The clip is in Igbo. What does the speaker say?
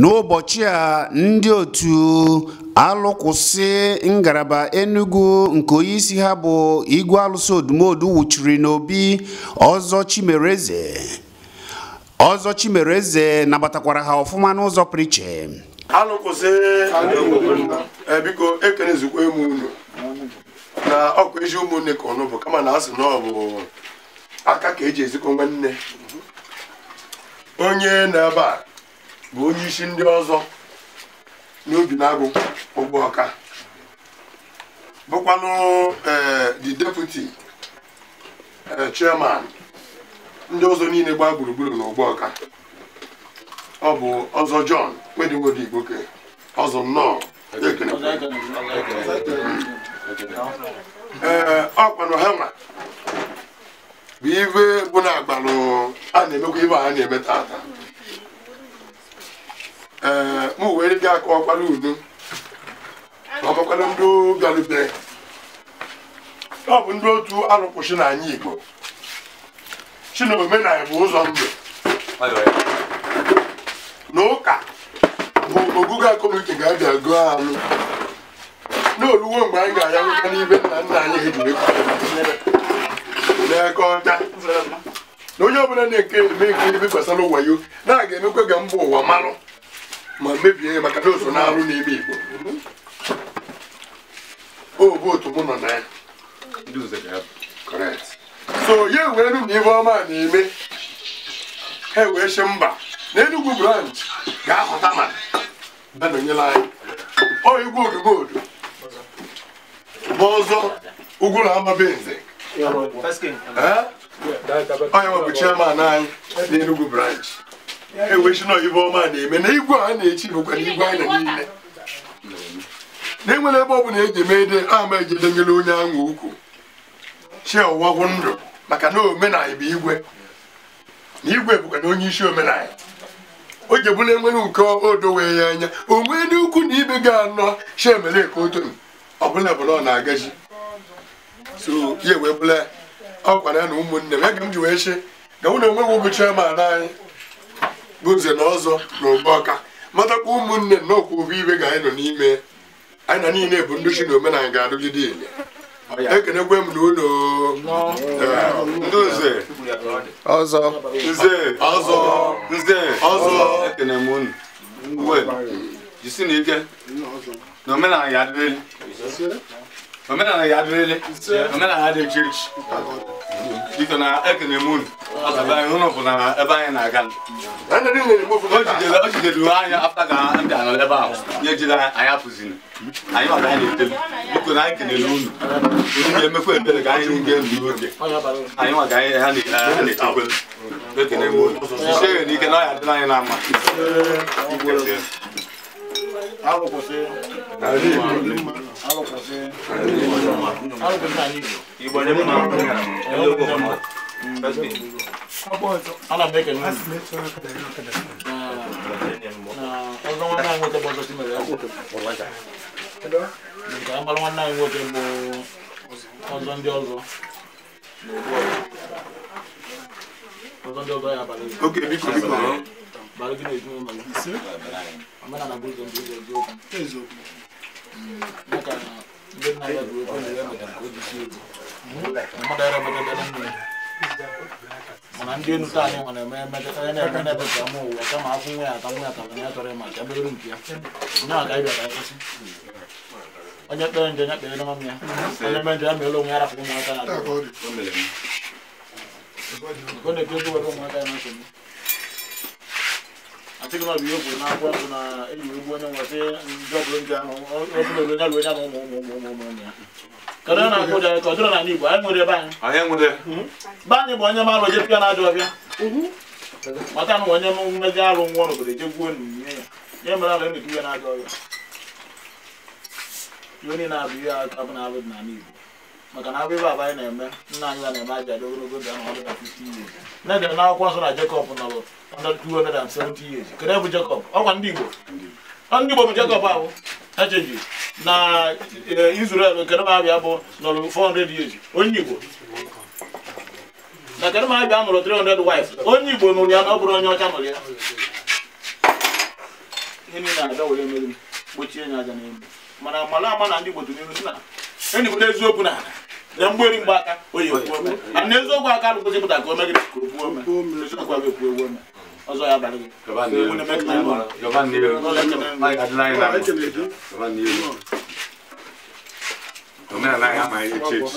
n'ụbọchị a ndị otu alụkwụsị ngalaba Enugu nke onyeisi ha bụ Igwe Alụsị Odumodu wụchiri n'obi ọzọ Chimereze ọzọ Chimereze nabatakwara ha ọfụma n'ụzọ pụrụ iche alụkwụsị e, biko ekenezikwa eme unu na ọkụ ezi ụmụnne ka ọnụ bụ kama na asị na ọ bụ aka ka eji ezikọ nwanne onye na aba. bụ onye isi ndị ọzọ n'obi na-agụ ụgbọ ọka bụkwanụ eh, the deputy eh, chairman ndị ọzọ niile gbaa gburugburu n'ụgbọ ọka ọ bụ ọzọ John wedinwodi igboke ọzọ nnọọ ee eh, ọkpanụ ha nwa bụ ibe bụ na agbalụ a na-emekwa ibe a na-eme taata. m were gị aka ọkwala udo ọgbakwala ndị bịarubere ọ bụ ndị otu arụpụchi na anyị igbo chi na bụ ụzọ ndụ na ụka bụ oguga kọmiti ga-abịa gụọ anụ n'oluwo mgbe anyị ga-aga nweta n'ibe nna nna anyị ejiri n'aka ọcha na onye ọbụla na-eke eme nke ibe gbasara ụwa wayo na aga ga-emekwa ga mba ụwa marụ ma mebie maka na o na-arụ n'ime Igbo o bụ otu mụ nọ na ya so ya eweru na ibe ọma na-eme ha ewee shi mba na Enugu branch ga ahụta ma anọnyere anyị ọ igwe odugodu bụ ọzọ ugwu na amabe nze onye bụ chairman anyị na Enugu branch ewesi na ibe ọma na-eme na igwe a na-echi bụkwa na igwe anya niile na enwere ebe ọ bụla eji eme ede ama ejedengere onye anwụ ukwu chi ọwagwụ ndụ maka na omenala bụ igwe na igwe bụkwa na onye isi omenala o jebula enwere nke odowee ya anya onwe n'ukwu na ibe ga-anọ chi emere ka otom ọbụla bụ na ọ na-agaji so ya ewebula ọkwara ya na ụmụnne m ya ga m ji wee chi ga mụ na onwe m bụ chairman anyị n'ụzọ na ọzọ na ụbọka matakwa ụmụnne n'ọkwa obi ibe ga anyị nọ n'ime anyị na niile bụ nduchi na omenala ga-adụgide ile ekenekwe m na ụlọ nduze ọzọ nze ọzọ nze ọzọ omenala ya omenala ya omenala ya dị echi echi ito na ekenemun ebe anyị na-aga o jidere uwe anya afta ga ndị anọ ebe ahụ ya ejide anyị apụzina anyị maka anyị na-etelu biko na anyị kenele unu unu ga-emekwa ebere ka anyị ga ebu oge anyị maka anyị ha na-etekwe ekene m unu iseghe n'ike na ọya dịla anyị na ama Thank you. agbara nwanne anyị nwoke bụ ọzọ ndị ọzọ ọzọ ndị ọzọ ya abalị bara gị na-ezinụlọ omenala bụ ụzọ ndị ụzọ eziokwu maka na ndị nna ya bụ ego na ya maka ka o jisi ego mmadụ ara emegedere mmiri mana ndị enu taa anyị nwere eme emegata ya na-eme n'ebe ka ama ụwa kama afọ nwa ya ata nwa ya tara ya chọrọ ịma ka ebe eru nke ya onye a ka anyị bịara kwụsị onye kpere njọ onye kpere n'ọma ya onye mere njọ ya meere onwe ya rapụ ụmụaka na-adịghị ọ na-ekwu ebe ụmụaka ya na-asogbu achịkị ma ọ bụ ihe obodo na eji onye nwa sị ọbụla ahụ ọbụla ahụ ya be anyị bụ onye marụ onye arụ ya ya mere ọbịa abụ na alụ maka na agwụ aba na-eme nna anyị na-eme abịa dị ogologo oge ahụ ọdụ na 50 years na na akwụkwọ nsọ na Jacob nọrọ 270 years kedu bụ Jacob ọkwa ndị Igbo ndị Igbo bụ Jacob ahụ echeji na e, Israel nke ma abịa bụ nọrọ 400 years onye Igbo na kedụ abịa nụrụ 300 onye Igbo nụrụ ya na ọ onye ọcha nụrụ ya ihe niile na-abịa were emeri ya mgberi mgbe aka oyi ekwu ome na eziokwu aka alụ kwụsị pụta ka ome gị ka okwu ome eziokwu aka ekwu egwu ome ọzọ ya abalị gị omenala anyị amaghị echi echi